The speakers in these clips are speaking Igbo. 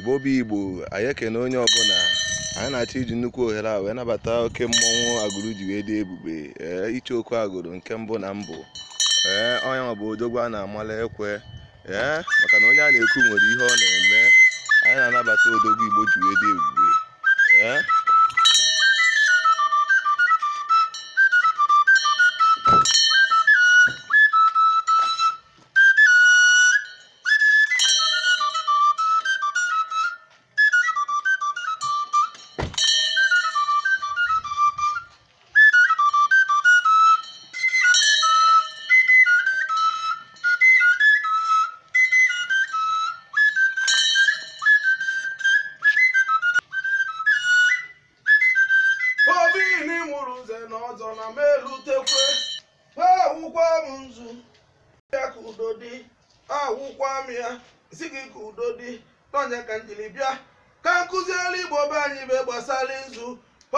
igbo bụ igbo anyị ekene onye ọbụla anyị na-achọ iji nnukwu ohere a wee nabata oke mmọnwụ agụrụ ji wee dị ebube ee iche oku agụrụ nke mbụ na mbụ ee onye ọ bụ odogwu a na-amala ekwe ee maka na onye a na-ekwu nwere ihe ọ na-eme anyị na-anabata odogwu igbo ji wee dị ebube n'ọzọ na m elutekwe ha awụkwa m nzu ya ka udo dị awụkwa m ya si gị ka udo dị n'ọnya ka njiri bịa ka nkụziere igbo be anyị be gbasara nzu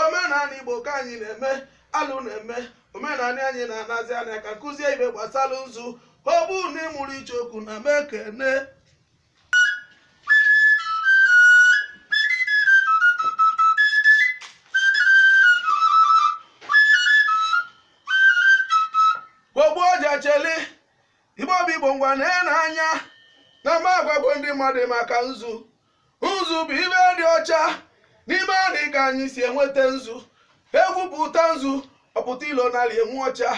omenala igbo ka anyị na-eme alụ na-eme omenala anyị na-anazi anya ka nkụzi ibe gbasara nzu ọ na ịmụrụ iche okwu na mekene chele ibe obi igbo ngwa na n'anya na agwa bụ ndị mmadụ maka nzu nzu bụ ibe dị ọcha n'ime anị ka anyị si enweta nzu egwu bụ nzu ọpụta ilo narị enwu ọcha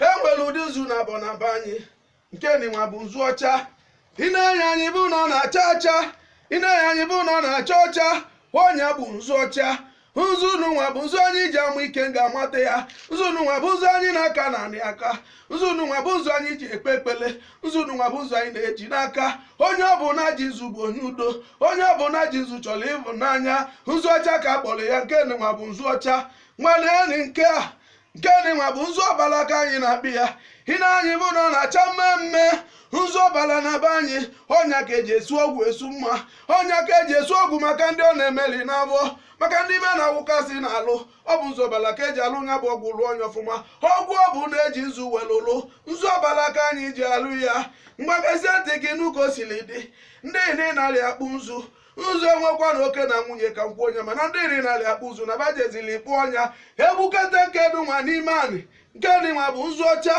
e nwere ụdị nzu na abọ anyị nke nịnwa bụ nzu ọcha ịna na-enye anyị bụ na ọ na-acha ọcha ịna na-enye anyị bụ na ọ na-acha ọcha onye bụ nzu ọcha nzu unu nwa bụ nzu anyị ji amụ ike ga-amata ya nzu unu nwa bụ ụzọ anyị na-aka na aka nzu unu nwa bụ ụzọ anyị ji ekpe ekpele nzu unu nwa bụ ụzọ anyị na-eji n'aka onye ọbụla ji nzu bụ onye udo onye ọbụla ji nzu chọrọ ịhụnanya nzu ọcha ka a kpọrọ ya nke nwa bụ nzu ọcha nwanne enyi nke a nke dị nwa bụ nzu ọbala ka anyị na-akpị ya hina anyị bụ na ọ na-acha mme nzu ọbala na be anyị ọnya ka eji esu ọgwụ esu mma ọnya ka eji esu ọgwụ maka ndị ọ na-emeli n'abụọ maka ndị be na-awụkasị na-alụ ọ bụ nzu ọbala ka eji alụ nya bụ ọgwụ lụọ onye ọfụma ọgwụ ọ bụ na eji nzu welụlụ nzu ọbala ka anyị ji alụ ya mgbakasị ntị gị n'ụka o dị ndị na narị akpụ nzu ụzọ enwekwa na oke na nwunye ka nkwu onye mana ndị iri narị akpụ ụzụ na bajezili ikpụ ọnya nke nkedu nwa n'ime anị nke dị nwa bụ nzu ọcha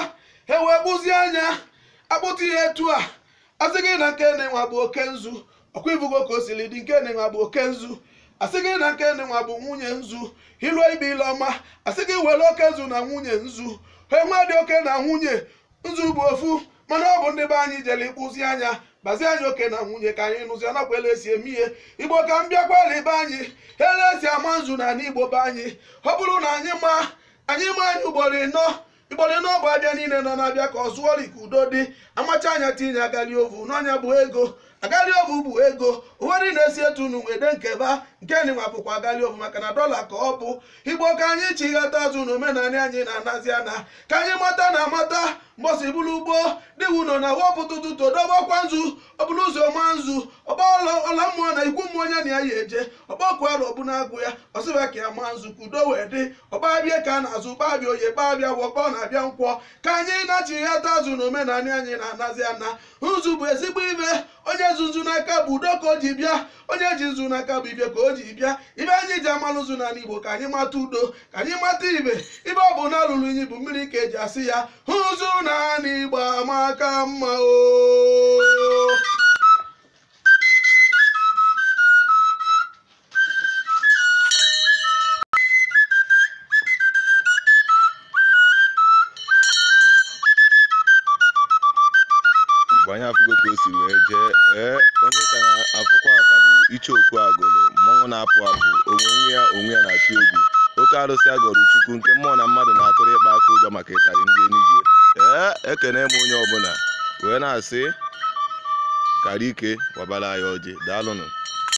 ewee kpụzie anya akpụta ihe etu a asị gị na nke dị nwa bụ oke nzu ọkwa ibugo ka o siri dị nke dị nwa bụ oke nzu asị gị na nke dị bụ nwunye nzu ilu ibe ile ọma asị gị were oke nzu na nwunye nzu enwe dị oke na nwunye nzu bụ ofu mana ọ bụ ndị be anyị jere ịkpụzi anya gbazie anyị oke na nwunye ka anyị nụzi nakwa ele esi eme ihe igbo ka m kwali be anyị ele esi ama nzu na igbo be anyị ọ bụrụ na anyị ma anyị ma anyị ugboro ịnọ igboro ịnọ bụ abịa niile nọ na-abịa ka ọ zụọri ka udo dị amacha anya tinye agali ovu n'ọnya bụ ego agali ovu bụ ego uweri na-esi etu nwede wede nkeba nke na bụkwa gali ofu maka na dọla ka ọ bụ igbo ka anyị chi ghata azụ na omenanị anyị na-anazi ana ka anyị mata na amata mgbọsi bụrụ ugbo dịwu nọ na wopụtụtụtụ dobakwa nzu ọbụrụ ụzọ ọma nzu ọla mmụọ na ikwu mmụọ onye na ya ya eje ọgbakụarụ ọbụna agụ ya ọsịba ka ya maa nzu ka udo wee dị ọgbabịa ka a na-azụ gbabịa oye gbabịa wọkpọ na-abịa nkwọ ka anyị na-achighata azụ na omenanị anyị na-anazi ana nzu bụ ezigbo ibe onye nzu n'aka bụ udo ka o ji bịa onye ji nzu n'aka bụ ibe ka o o ji bịa ibe anyị ji amalụ ụzụ na Igbo ka anyị mata udo ka anyị mata ibe ibe ọ bụ na alụrụ inyi bụ mmiri ka eji asị ya ụzụ n'ala Igbo amaka mma o onye ka afụkwa ka bụ iche okwu agụ na-apụ apụ onwe ya onwe ya na-achụ egwu oke arụsị agọrọ chukwu nke mmụọ na mmadụ na-atụrụ ịkpa aka ụjọ maka ịtarị ndị enugwu ee ekene m onye ọbụla wee na-asị kara ike ọbara anyị ọjị daalụnụ